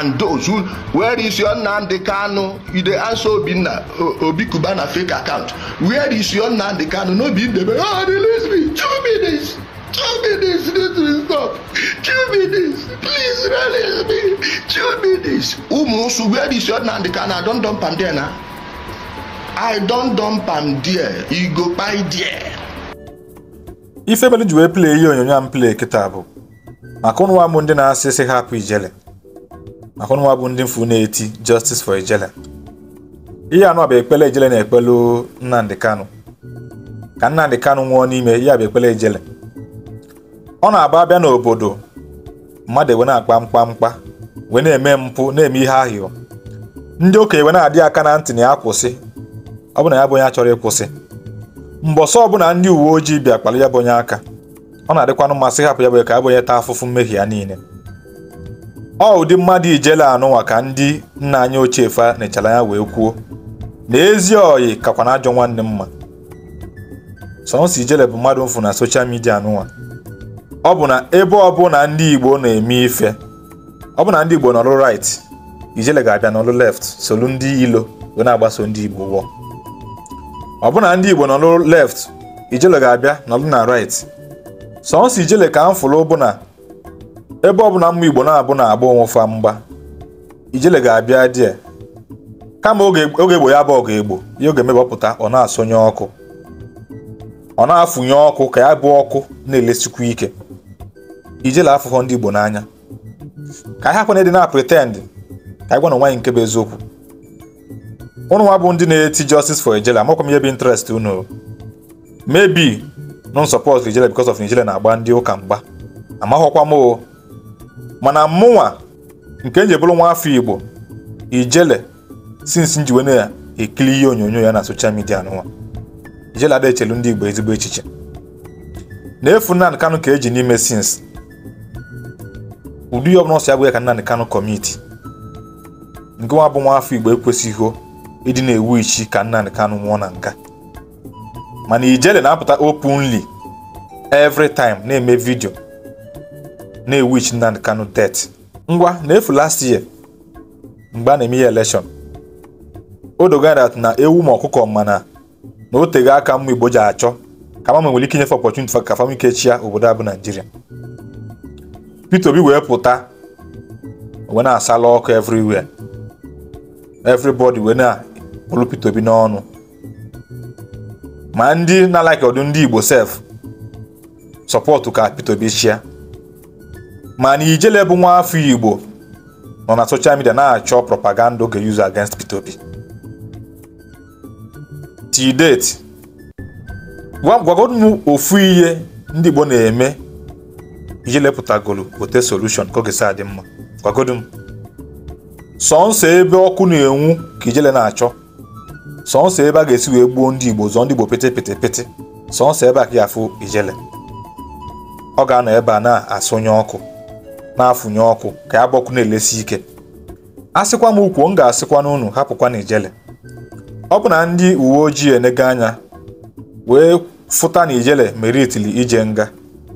and those who where is your Nnamdi Kanu you dey answer Obinna Obi Cubana fake account where is your Nnamdi Kanu no be Ndebe oh release me two minutes two minutes this will stop two minutes please release me two minutes umunsu where is your Nnamdi Kanu I don dump am there na I don dump am there e go kpai there. ife mere ji wee plee ihe onyonyo am play kịta bụ maka ụnụ nwa m ndị na-asị sị hapụ ijele maka ụnụnwa bụ ndị mfu na-eti justice for ijele ihe anụ bụ ekpele Ejele na-ekpelu Nnamdi Kanu ka Nnamdi Kanu nwụọ n'ime ya bụ ekpele Ejele ọ na-aba abịa n'obodo mmadụ ewe na-akpa mkpamkpa wee na-eme mpụ na-eme ihe ahịọ ndị okenye wee na-adị aka na ntị na ya kwụsị ọ bụ na ya bụ onye achọrọ ịkwụsị mgbe ọsọ ọbụla ndị uwe ojii bịa kpalụ ya bụ onye aka ọ na-adịkwanụ mmasị hapụ ya bụ ka ya bụ onye taa afụfụ mmehie ya niile ọ ụdị mmadụ ijele anụnwa ka ndị nna anyị ochie fa nechara ya wee kwuo na ezi ọyị kakwa na ajọ nwanne mma sọnsọ ijele bụ mmadụ mfu na soshal midia anụnwa ọ bụ na ebe ọ bụ na ndị igbo na-eme ife ọ bụ na ndị igbo nọlụ right ijele ga-abịa n'ọlụ left solu ndị ilo wee na-agbaso ndị igbo wọ ọ bụ na ndị igbo nọlụ left ijele ga-abịa n'ọlụ na right sọnsọ ijele ka m fụrụ bụ na ebe ọ bụla mma igbo na-abụ na-agba onwefa mgba ijele ga-abịa die kama oge egbo ya bụ ọgụ egbo ya oge mebapụta ọ na-asọnye ọkụ ọ na-afụnye ọkụ ka ya bụ ọkụ na elesikwu ike ijele afụfọ ndị igbo n'anya ka ha kwana dị na pretend ka anyị gwa na nwaanyị nke bụ eziokwu ụnụ nwa bụ ndị na-eti justice for ijele amakwa m ihe bụ interest unu maybe non support ijele because of ijele na-agba ndị ụka mgba amaghọkwa m o mana mụnwa nke eji bụrụ nwa afọ igbo ijele sinsi njiwe na ekili ihe onyonyo ya na soshal midia n'ụwa ijele ada echelu ndị igbo ezigbo echiche na-efu Nnamdi kanụ ka eji n'ime sinsi ụdị ihe ọbụla ọsọ ya ya ka Nnamdi kanụ kọmiti nke nwa bụ nwa afọ igbo ekwesịghị ịdị na-ewu ichi ka Nnamdi kanụ nwụọ na nka mana ijele na-apụta openly every time na-eme vidio na ewu Nnamdi Kanu det ngwa na-efu last year mgbe a na-eme ya elekshọn o na ewu ma ọkụkọ mana na o aka mma Igbo ji achọ ka mama nwere ike nyefe opportunity ka fam ike obodo a bụ Naijiria Peter Obi wee pụta wee na-asala ọkụ everywhere everybody wee na-bụrụ Peter Obi n'ọnụ ma ndị na-alaiki ọdụ ndị Igbo sef sọpọtụ ka Peter Obi chịa mana Ijele bụ nwa afọ Igbo nọ na social midia na-achọ propaganda oge use against Peter Obi deeti date ofu ihe ndị Igbo na-eme Ijele pụtagolu ote solushọn ka oge saa dị mma gwagodu sọnsọ ebe ọkụ na-enwu ka Ijele na-achọ sọnsọ ebe a ga-esi wee gbuo ndị Igbo zọọ ndị Igbo pete pete pete sọnsọ ebe a ka ya afụ Ijele ọ ga-anọ ebe a na-asụnye ọkụ na-afụnye ọkụ ka ya gbọkụ na-elesi ike a sịkwa m ukwuo m ga-asịkwa n'unu hapụkwa na ijele ọ bụ na ndị uwe ojii enego anya wee fụta na ijele meritili ije nga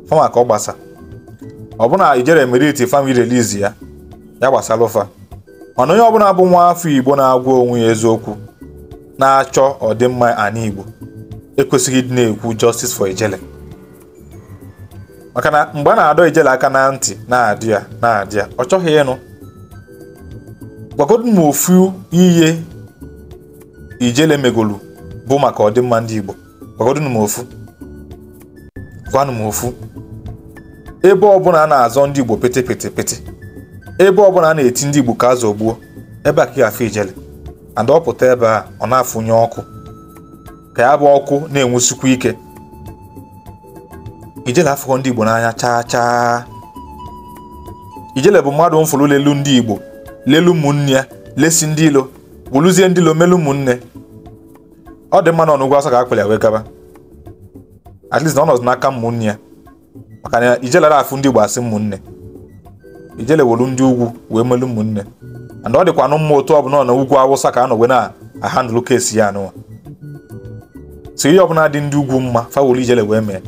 fama ka ọ gbasa ọ bụ na ijele meriti fami relizi ya ya gbasara ụfa mana onye ọbụla bụ nwa afọ igbo na-agwa onwe ya eziokwu na-achọ ọdịmma anyị igbo ekwesịghị ịdị na-ekwu justice for ijele maka na mgbe a na-adọ ijele aka na ntị na-adị ya na-adị ya ọ chọghị ịnụ gwagodu m ofu ihe ijele megolu bụ maka ọdịmma ndị Igbo gwagodu m ofu gwanụ m ofu ebe ọbụla a na-azọ ndị Igbo pete pete pete ebe ọbụla a na-eti ndị Igbo ka a zọgbuo ebe a ka ya ijele and ọ pụta ebe a ọ na-afụnye ọkụ ka ya bụ ọkụ na-enwusikwa ike ijele afụkọ ndị igbo n'anya chaa chaa ijele bụ mmadụ mfụrụ lelu ndị igbo lelu ụmụnne ya lesi ndị ilo wuluzie ndị ilo melu ụmụnne ọ dị mma na ọnụgwụ asọ ka akpali ya wee gaba at least na ọ n'aka ụmụnne ya maka na ijelara afụ ndị igbo asị mmụnne ijele wolu ndị ugwu wee melu ụmụnne and ọ dịkwa anụ mma otu bụ na ugwu awụsa ka a nọ wee na-ahandụlụ kesi ya anụwa so ihe ọbụla dị ndị ugwu mma fawolu ijele wee mee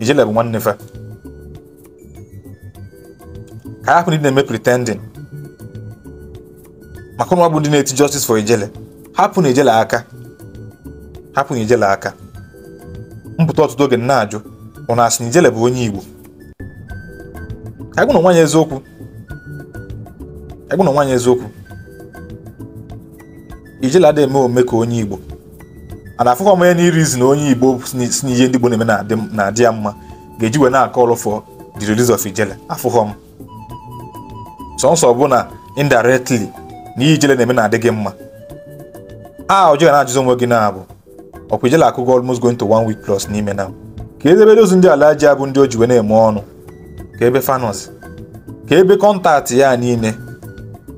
ije lebụ nwanne fa ka ahapụ ndị na-eme pretending maka ụmụ bụ ndị na-eti justice for ijele hapụ na ijele aka hapụ na ijele aka mpụta ọtụtụ oge na-ajụ ụnụ asị na ijele bụ onye igbo agụ na nwaanyị eziokwu agụ na nwaanyị eziokwu ijele adịghị eme ome ka onye igbo ana afụkwa m ya na irizi na onye igbo si n'ihe ndị igbo na-eme na-adị ya mma ga-eji wee na akọ for the release of ijele afụghọ m sọnsọ bụ na indirectly na ihe ijele na-eme na-adị gị mma a ọjọọ na-ajụzi onwe gị na-abụ ọkwa ijele akụgo almost going to one week plus n'ime na ka ebe dozu ndị ala ji abụ ndị o ji wee na-eme ọnụ ka ebe fanọs ka ebe kọntaktị ya niile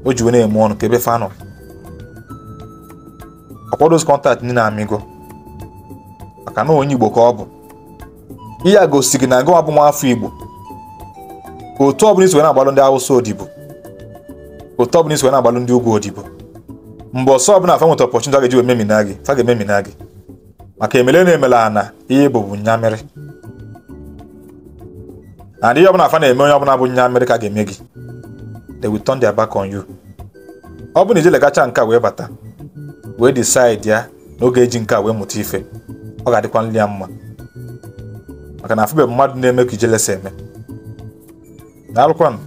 o ji wee na-eme ọnụ ka ebe fanos akwadozi kọntaktị ndị na-amịgo maka na onye igbo ka ọ bụ ihe a gosi gị na gị bụ nwa afọ igbo otu ọbụla iso na-agbalụ ndị awụsa odibo otu ọbụla iso na-agbalụ ndị ugwu odibo mgbe ọsọ ọbụla afọ nweta ọpọchụntị ga-eji ememina gị fa ga-ememina gị maka emele na-emela ana ihe bụbu nyamịrị na ndị ihe ọbụla afa na-eme onye ọbụla bụ nyamịrị ka a ga-eme gị they will turn their back on you ọ bụ na ije legacha nke a wee bata wee decide ya n'oge eji nke a wee mụta ife ọ ga-adịkwa nri ya mma maka na afụbeghị mmadụ na-eme ka ijelesa eme daalụkwanụ